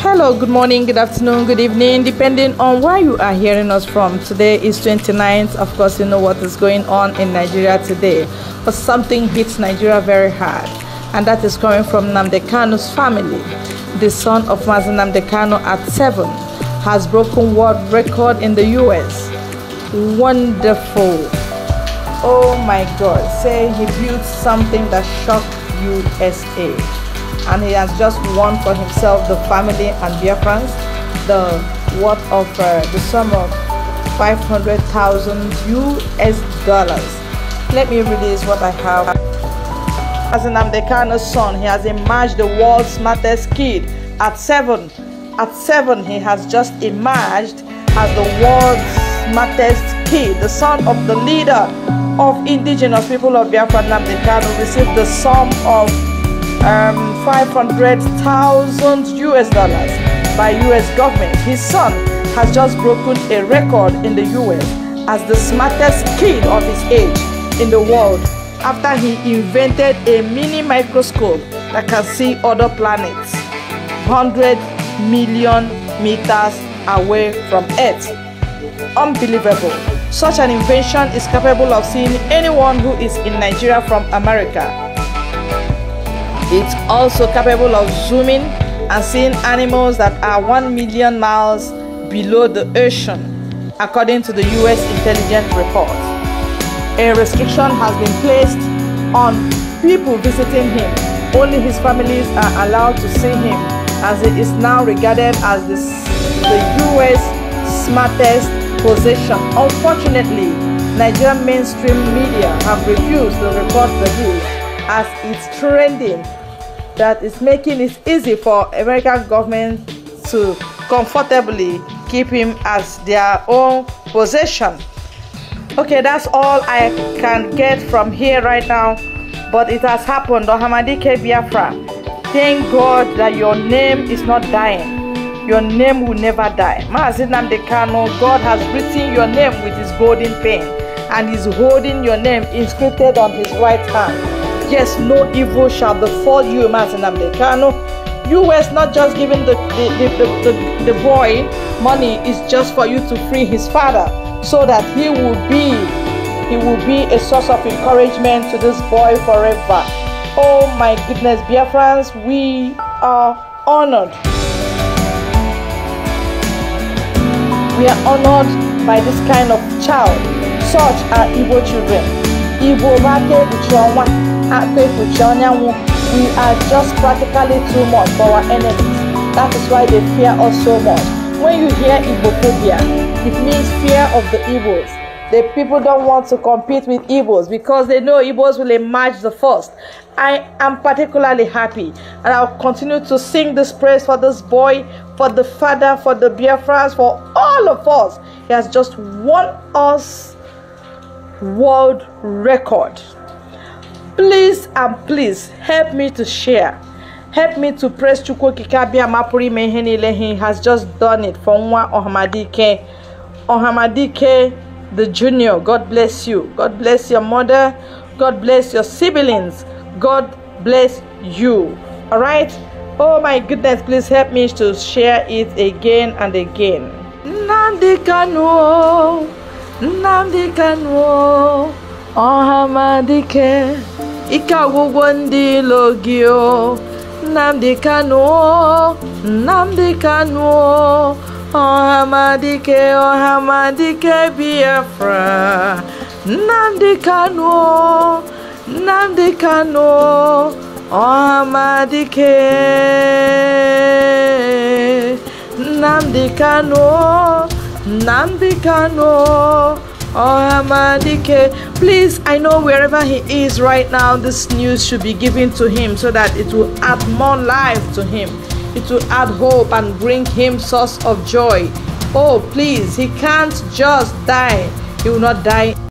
Hello, good morning, good afternoon, good evening, depending on where you are hearing us from. Today is 29th. Of course, you know what is going on in Nigeria today, but something hits Nigeria very hard, and that is coming from Namdekano's family. The son of Mazen Namdekano at seven has broken world record in the US. Wonderful. Oh my God, say he built something that shocked USA and he has just won for himself the family and Biafrans the worth of uh, the sum of 500,000 US dollars. Let me release what I have. As an Amdekano's son, he has emerged the world's smartest kid at seven. At seven, he has just emerged as the world's smartest kid, the son of the leader of indigenous people of Biafra Namdekano received the sum of um, 500,000 US dollars by US government. His son has just broken a record in the US as the smartest kid of his age in the world after he invented a mini microscope that can see other planets 100 million meters away from Earth. Unbelievable. Such an invention is capable of seeing anyone who is in Nigeria from America. It's also capable of zooming and seeing animals that are 1 million miles below the ocean, according to the US intelligence report. A restriction has been placed on people visiting him. Only his families are allowed to see him, as it is now regarded as the, the US smartest possession. Unfortunately, Nigerian mainstream media have refused to report the news as it's trending that is making it easy for American government to comfortably keep him as their own possession. Okay, that's all I can get from here right now, but it has happened. Ohamadike Biafra, thank God that your name is not dying. Your name will never die. Maazinam Dekano, God has written your name with his golden pen and is holding your name inscribed on his right hand. Yes, no evil shall befall you, Martin Americano. US not just giving the, the, the, the, the boy money, is just for you to free his father so that he will be he will be a source of encouragement to this boy forever. Oh my goodness, dear friends, we are honored. We are honored by this kind of child. Such are evil children. Evil you are one active with Janya we are just practically too much for our enemies. That is why they fear us so much. When you hear Igbophobia, it means fear of the Igbos. The people don't want to compete with Igbos because they know Igbos will emerge the first. I am particularly happy and I'll continue to sing this praise for this boy, for the father, for the Biafrans, for all of us. He has just won us world record please and please help me to share help me to press chukwuokike abịama pụrụ ime ihe niile he has just done it for nwa ohamadike ohamadike the junior god bless you god bless your mother god bless your siblings god bless you all right oh my goodness please help me to share it again and again nnamdi kanu nnamdi kanu ohamadike ike agwụgwọ ndị ilo gị o Nnamdi Kanu Nnamdi Kanu Ọhamadike oh, oh, Ọhamadike Biafra Nnamdi Kanu Nnamdi nam di Nnamdi nam di Kanu Oh, Oyamadike. Please, I know wherever he is right now, this news should be given to him so that it will add more life to him. It will add hope and bring him source of joy. Oh, please, he can't just die. He will not die